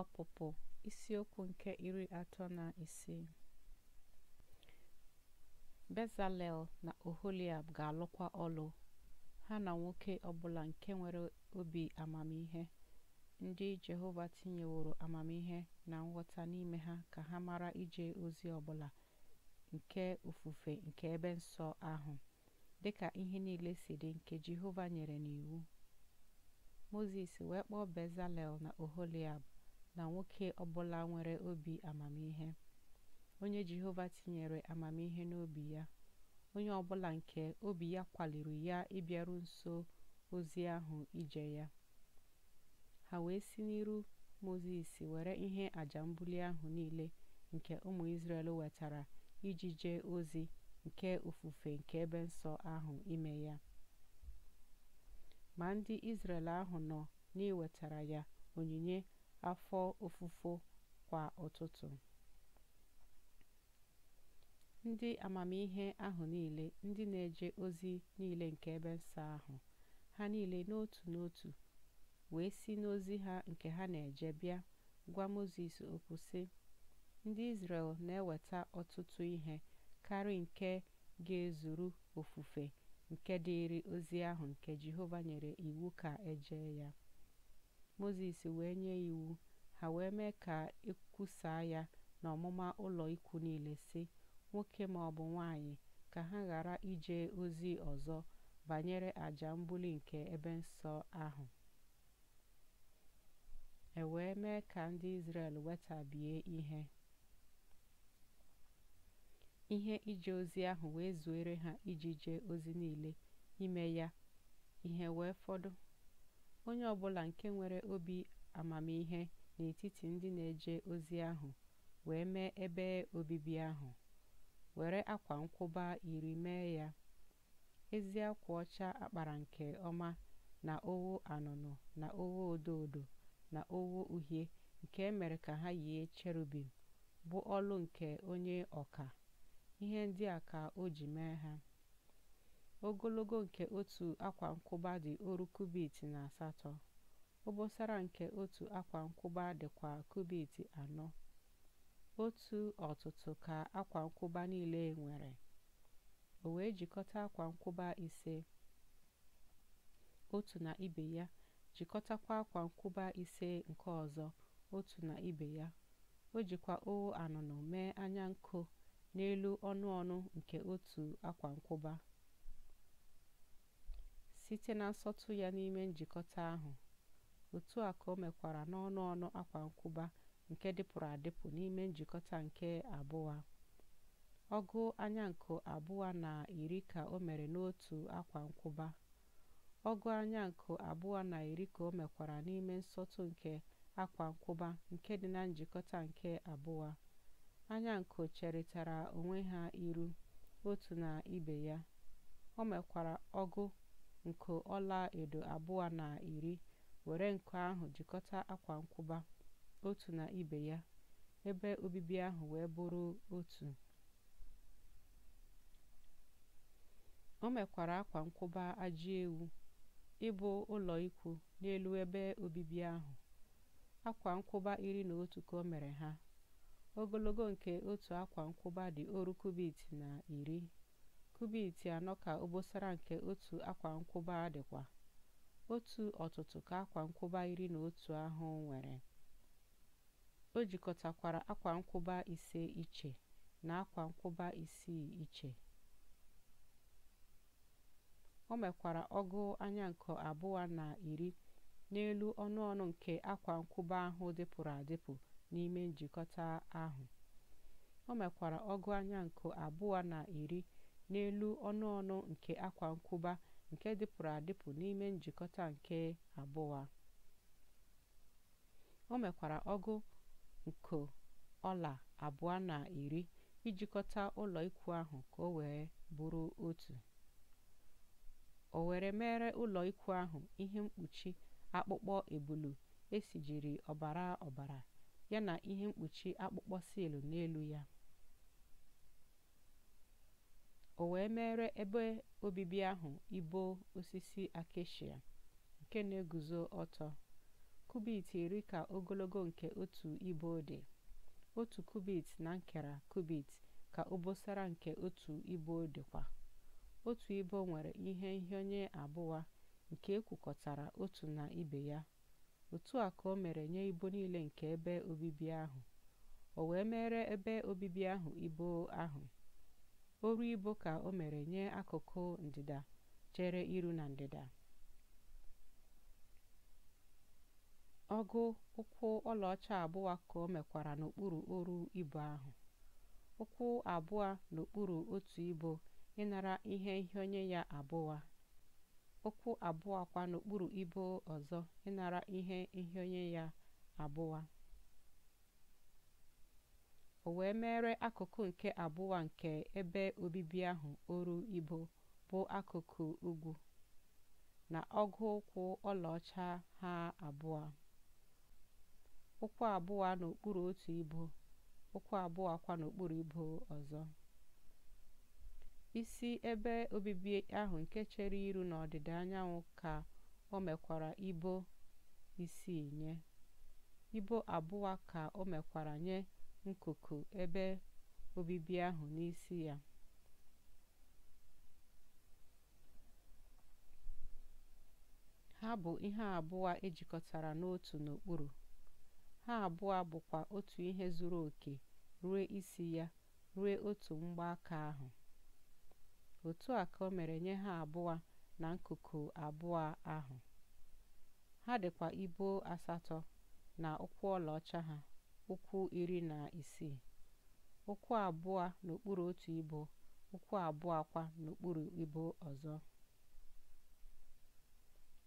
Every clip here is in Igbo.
Ọpụpụ isiokwu nke iri atọ na isii Bezalel na Oholiab ga-alụkwa ọlụ, ha na nwoke ọbụla nke nwere obi amamihe, ndị Jehova tinyeworo amamihe na nghọta n'ime ha ka ha mara ije ozi ọbụla nke ofufe nke ebe nsọ ahụ, dị ka ihe niile si dị nke Jehova nyere n'iwu. Mozis wee kpọọ Bezalel na Oholiab na nwoke ọbụla nwere obi amamihe onye jehova tinyere amamihe n'obi ya onye ọbụla nke obi ya kwaliri ya ịbịaru nso ozi ahụ ije ya ha wee si n'iru mozis were ihe aja mbuli ahụ niile nke ụmụ israel wetara iji jee ozi nke ofufe nke ebe nsọ ahụ ime ya ma ndị israel ahụ nọ n'iwetara ya onyinye afọ ofufo kwa ụtụtụ ndị amamihe ahụ niile ndị na-eje ozi niile nke ebe nsọ ahụ ha niile n'otu n'otu wee si n'ozi ha nke ha na-eje bịa gwa moses okwu sị ndị israel na-eweta ọtụtụ ihe karị nke ga-ezuru ofufe nke dịịrị ozi ahụ nke jehova nyere iwu ka eje ya mozes wee nye iwu, ha wee mee ka e ya na ọmụma ụlọ ikwu niile si “Nwoke maọbụ nwanyị, ka ha ghara ije ozi ọzọ banyere aja mbuli nke ebe nsọ ahụ.” E wee mee ka ndị Izrel wetabie ihe. Ihe ije ozi ahụ wee zuere ha iji jee ozi niile ime ya ihe wee fọdụ. Onye ọ bụla nke nwere obi amamihe n'etiti ndị na-eje ozi ahụ wee mee ebe obibi ahụ, were akwa nkwụba iri mee ya, ezi akwa ọcha akpara nke ọma na owo anụnụ na owo odo odo na owo uhie nke e mere ka ha yie cherubim, bụ ọlụ nke onye ọka. Ihe ndị a ka o ji mee ha. ogologo nke otu akwa-nkwụba dị ọrụ kubit na asatọ obosara nke otu akwa-nkwụba dịkwa kubit anọ otu ọtụtụ ka akwa-nkwụba niile nwere o wee jikọta akwa-nkwụba ise otu na ibe ya jikọtakwa akwa-nkwụba ise nke ọzọ otu na ibe ya o jikwa ogho anụnụ mee anya nkụ n'elu ọnụ ọnụ nke otu akwa-nkwụba site na nsọtụ ya n'ime njikọta ahụ, otu a ka o mekwara n'ọnụ ọnụ akwa nkwụba nke dịpụrụ adịpụ n'ime njikọta nke abụọ. Ọgụ anya anyankụ abụọ na iri ka o mere n'otu akwa nkwụba. Ọgụ anyankụ abụọ na iri ka o mekwara n'ime nsọtụ nke akwa nkwụba nke dị na njikọta nke abụọ. cherịtara onwe ha iru otu na ibe ya. O mekwara ọgụ nko edo abụọ na iri were nko ahụ jikọta akwa nkwụba otu na ibe ya ebe obibi ahụ wee bụrụ otu o mekwara akwa nkwụba ajị ewu ịbụ ụlọ ikwu n'elu ebe obibi ahụ akwa nkwụba iri na otu ka o mere ha ogologo nke otu akwa nkwụba dị oru kubit na iri kubit anọ ka obosara nke otu akwa nkwụba dịkwa otu ọtụtụ ka akwa nkwụba iri na otu ahụ nwere o jikọtakwara akwa nkwụba ise iche na akwa nkwụba isii iche o mekwara ọgụ anya nke abụọ na iri n'elu ọnụ ọnụ nke akwa nkwụba ahụ dịpụrụ adịpụ n'ime njikọta ahụ o mekwara ọgụ anya nke abụọ na iri n'elu ọnụ ọnụ nke akwa nkwụba nke dịpụrụ adịpụ n'ime njikọta nke abụọ O mekwara ọgụ nke ọla abụọ na iri ijikọta ụlọ ikwu ahụ ka o wee bụrụ otu. O were mere ụlọ ikwu ahụ ihe mkpuchi akpụkpọ ebulu esijiri ọbara ọbara yana ihe mkpuchi akpụkpọ siil n'elu ya. o wee mere ebe obibi ahụ ibo osisi akeshia nke na-eguzo ọtọ kubit iri ka ogologo nke otu ibo dị otu kubit na nkera kubit ka obosara nke otu ibo dịkwa otu ibo nwere ihe nhịọnye abụọ nke ekwukọtara otu na ibe ya otu a ka o mere nye ibo niile nke ebe obibi ahụ o wee mere ebe obibi ahụ ibo ahụ oru ibo ka o mere nye akụkụ ndịda chere iru na ndịda. Ọgụ ụkwụ ọlaọcha abụọ ka o mekwara n'okpuru oru ibo ahụ. Ụkwụ abụọ n'okpuru otu ibo ịnara ihe onye ya abụọ. Ụkwụ abụọ kwa n'okpuru ibo ọzọ ịnara ihe onye ya abụọ. o wee mere akụkụ nke abụọ nke ebe obibi ahụ oru ibo bụ akụkụ ugwu na ọgụ ụkwụ ọlaọcha ha abụọ ụkwụ abụọ n'okpuru otu ibo ụkwụ abụọ kwa n'okpuru ibo ọzọ isi ebe obibi ahụ nke chere iru n'ọdịda anyanwụ ka o mekwara ibo isi nye ibo abụọ ka o mekwara nye nkuku ebe obibi ahụ n'isi ya. Ha bụ ihe abụọ ejikọtara n'otu n'okpuru. Ha abụọ bụkwa otu ihe zuru oke ruo isi ya ruo otu mgbaaka ahụ. Otu a ka o mere nye ha abụọ na nkuku abụọ ahụ. Ha dịkwa ibo asatọ na ụkwụ ọlaọcha ha. ụkwụ iri na isii ụkwụ abụọ n'okpuru otu ibo ụkwụ abụọ kwa n'okpuru ibo ọzọ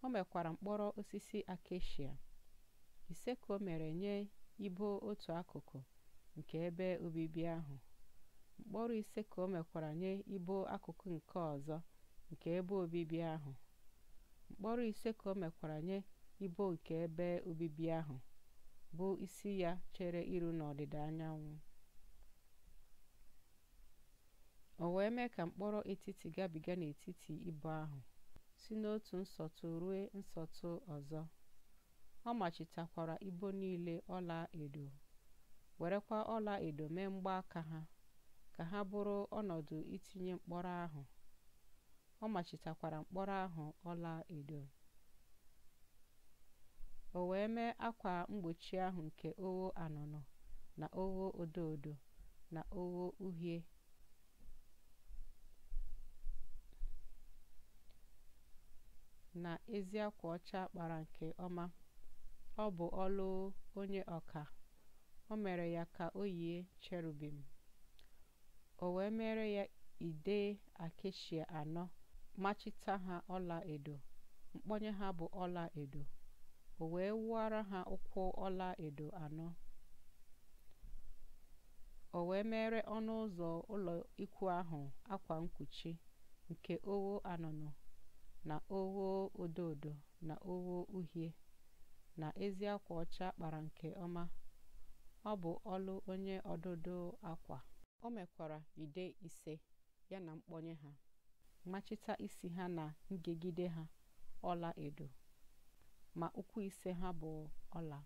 o mekwara mkpọrọ osisi akeshia ise ka o mere nye ibo otu akụkụ nke ebe obibi ahụ mkpọrọ ise ka o mekwara nye ibo akụkụ nke ọzọ nke ebe obibi ahụ mkpọrọ ise ka o mekwara nye ibo nke ebe obibi ahụ bụ isi ya chere iru n'ọdịda anyanwụ o wee mee ka mkpọrọ etiti gabiga n'etiti ibo ahụ si n'otu nsọtụ ruo nsọtụ ọzọ ọ machitakwara ibo niile ọla edo werekwa ọla edo mee mgbaaka ha ka ha bụrụ ọnọdụ itinye mkpọrọ ahụ ọ machitakwara mkpọrọ ahụ ọla edo o wee mee akwa mgbochi ahụ nke ogho anụnụ na ogho odo odo na ogho uhie na ezi akwa ọcha kpara nke ọma ọ bụ ọlụ onye ọka o mere ya ka o yie cherubim o wee mere ya ide akeshia anọ machita ha ọla edo mkpọnye ha bụ ọla edo o wee wụọra ha ụkwụ ọla edo anọ o wee mere ọnụ ụzọ ụlọ ikwu ahụ akwa mkpuchi nke owo anụnụ na owo odo na owo uhie na ezi akwa ọcha kpara nke ọma ọ bụ ọlụ onye ọdụdụ akwa o mekwara ide ise ya na mkpọnye ha machita isi ha na ngegide ha ọla edo ma ụkwụ ise ha bụ ọla